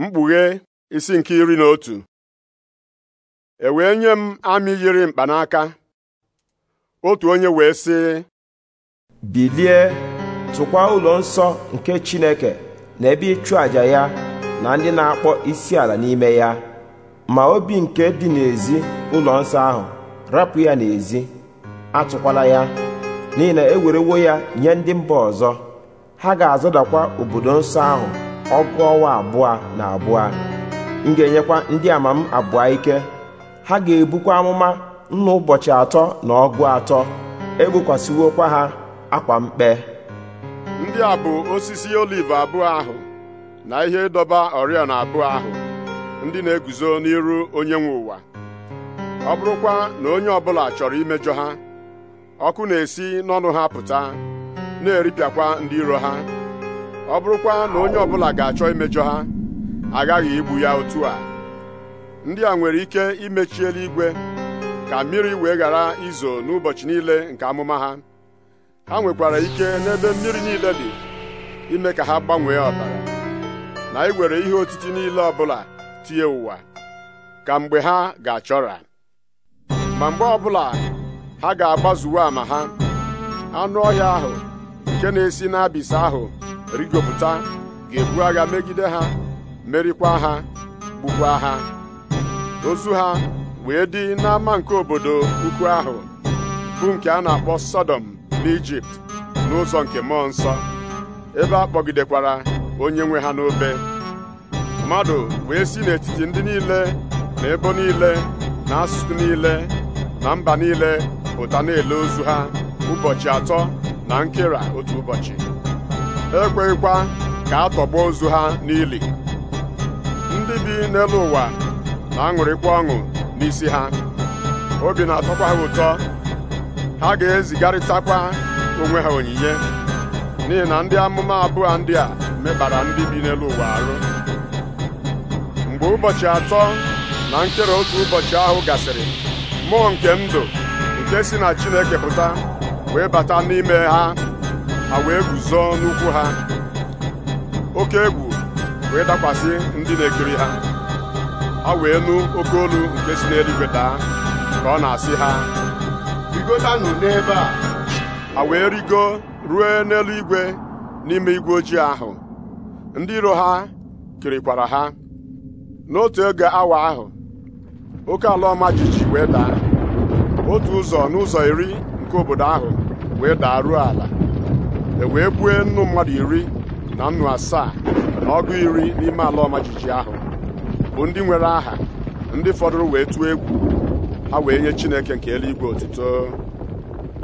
mkpughe isi nke iri na otu e wee nye m amị yiri mkpanaka otu onye wee sị bilie tụkwa ụlọ nsọ nke Chineke na ebe ịchụ àjà ya na ndị na-akpọ isiala n'ime ya ma obi nke dị n'ezi ụlọ nsọ ahụ rapụ ya n'ezi atụkwala ya n'ihi na ewerewo ya nye ndị mba ọzọ ha ga-azọdakwa obodo nsọ ahụ ọgụ ọnwa abụọ na abụọ m ga-enyekwa ndị ama m abụọ ike ha ga-ebukwa amụma nna ụbọchị atọ na ọgụ atọ kwa ha akwa mkpe ndị a bụ osisi oliv abụọ ahụ na ihe ịdọba oriọna abụọ ahụ ndị na-eguzo n'iru onye nwe ụwa ọ bụrụkwa na onye ọbụla chọrọ imejọ ha ọkụ na-esi n'ọnụ ha pụta na-eripịakwa ndị iro ha ọ bụrụkwa na onye ọbụla ga-achọ imejọ ha agaghị igbu ya otu a ndị a nwere ike imechi eluigwe ka mmiri wee ghara izo n'ụbọchị niile nke amụma ha ha nwekwara ike n'ebe mmiri niile dị ime ka ha gbanwee ọbara na iwere ihe otiti niile ọbụla tinye ụwa ka mgbe ha ga-achọra ma mgbe ọbụla ha ga-agbazuwe ama ha anụ ọhịa ahụ nke na-esi n'abịsị ahụ rigopụta ga-ebu agha megide ha merikwa ha gbukwa ha ozu ha wee dị n'ama nke obodo ukwu ahụ bụ nke a na-akpọ Sọdọm n'Ijipt n'ụzọ nke mmụọ nsọ ebe a kpọgidekwara onye nwe ha n'obe mmadụ wee si n'etiti ndị niile na ebo niile na asụsụ niile na mba niile pụta na-ele ozu ha ụbọchị atọ na nkera otu ụbọchị ekweghịkwa ka a tọgbuo ozu ha n'ili ndị bi n'elu ụwa na-aṅụrịkwa ọṅụ n'isi ha obi na-atọkwa ha ụtọ ha ga-ezigarịtakwa onwe ha onyinye n'ihi na ndị amụma abụọ ndị a mekpara ndị bi n'elu ụwa arụ mgbe ụbọchị atọ na nkere otu ụbọchị ahụ gasịrị mmụọ nke ndụ nke si na Chineke pụta wee bata n'ime ha ha wee guzo n'ukwu ha oke egwu wee dakwasị ndị na-ekiri ha ha wee nụ oke olu nke si n'eluigwe daa ka ọ na-asị ha rigotanụ n'ebe a ha wee rigo ruo igwe n'ime igwe ojii ahụ ndị iro ha kirikwara ha n'otu ego awa ahụ oke ala ọma wee daa otu ụzọ n'ụzọ iri nke obodo ahụ wee daa ruo ala e wee bue nnu mmadụ iri na nnu asaa na ọgụ iri n'ime ala ọmajiji ahụ bụ ndị nwere aha ndị fọdụrụ wee tụọ egwu ha wee nye Chineke nke eluigwe otuto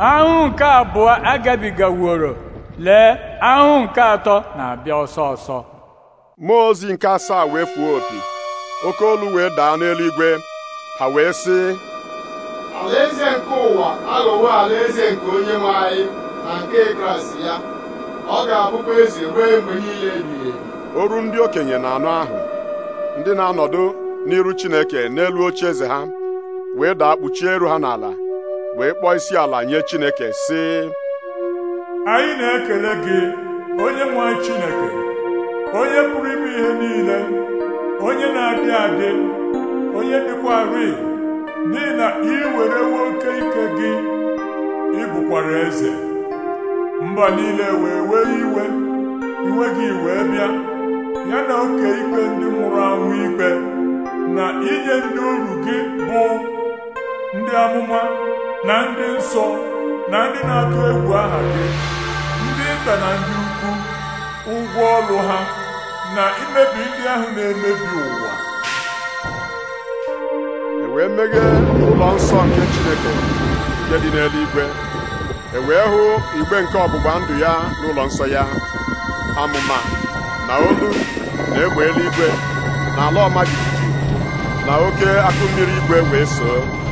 ahụ nke abụọ agabigaworo lee ahụ nke atọ na-abịa ọsọ ọsọ mmụọ ozi nke asaa wee fuo opi oke olu wee daa n'eluigwe ha wee sị alaeze nke ụwa aghọwo alaeze nke onye nwe anyị na nke kraịst ya ọ ga-abụkwa eze ruo mgbe niile ebighị oru ndị okenye na anụ ahụ ndị na-anọdụ n'iru chineke n'elu oche eze ha wee daa kpuchie eru ha n'ala wee kpọọ isi ala nye chineke sị anyị na-ekele gị onye nwe chineke onye pụrụ ime ihe niile onye na-adị adị onye dịkwa dịkwarị n'ihi na ị werewo oke ike gị ị eze mba niile wee wee iwe iwe gị wee bịa ya na oke ikpe ndị nwụrụ anwụ ikpe na inye ndị oru gị bụ ndị amụma na ndị nsọ na ndị na-atụ egwu aha gị ndị nta na ndị ukwu ụgwọ ọrụ ha na imebi ndị ahụ na-emebi ụwa e wee meghee ụlọ nsọ nke Chineke nke dị n'eluigwe e wee hụ igbe nke ọgbụgba ndụ ya n'ụlọ nsọ ya amụma na olu na egbe eluigwe na ala ọma jijiji na oke akụ mmiri igwe wee soo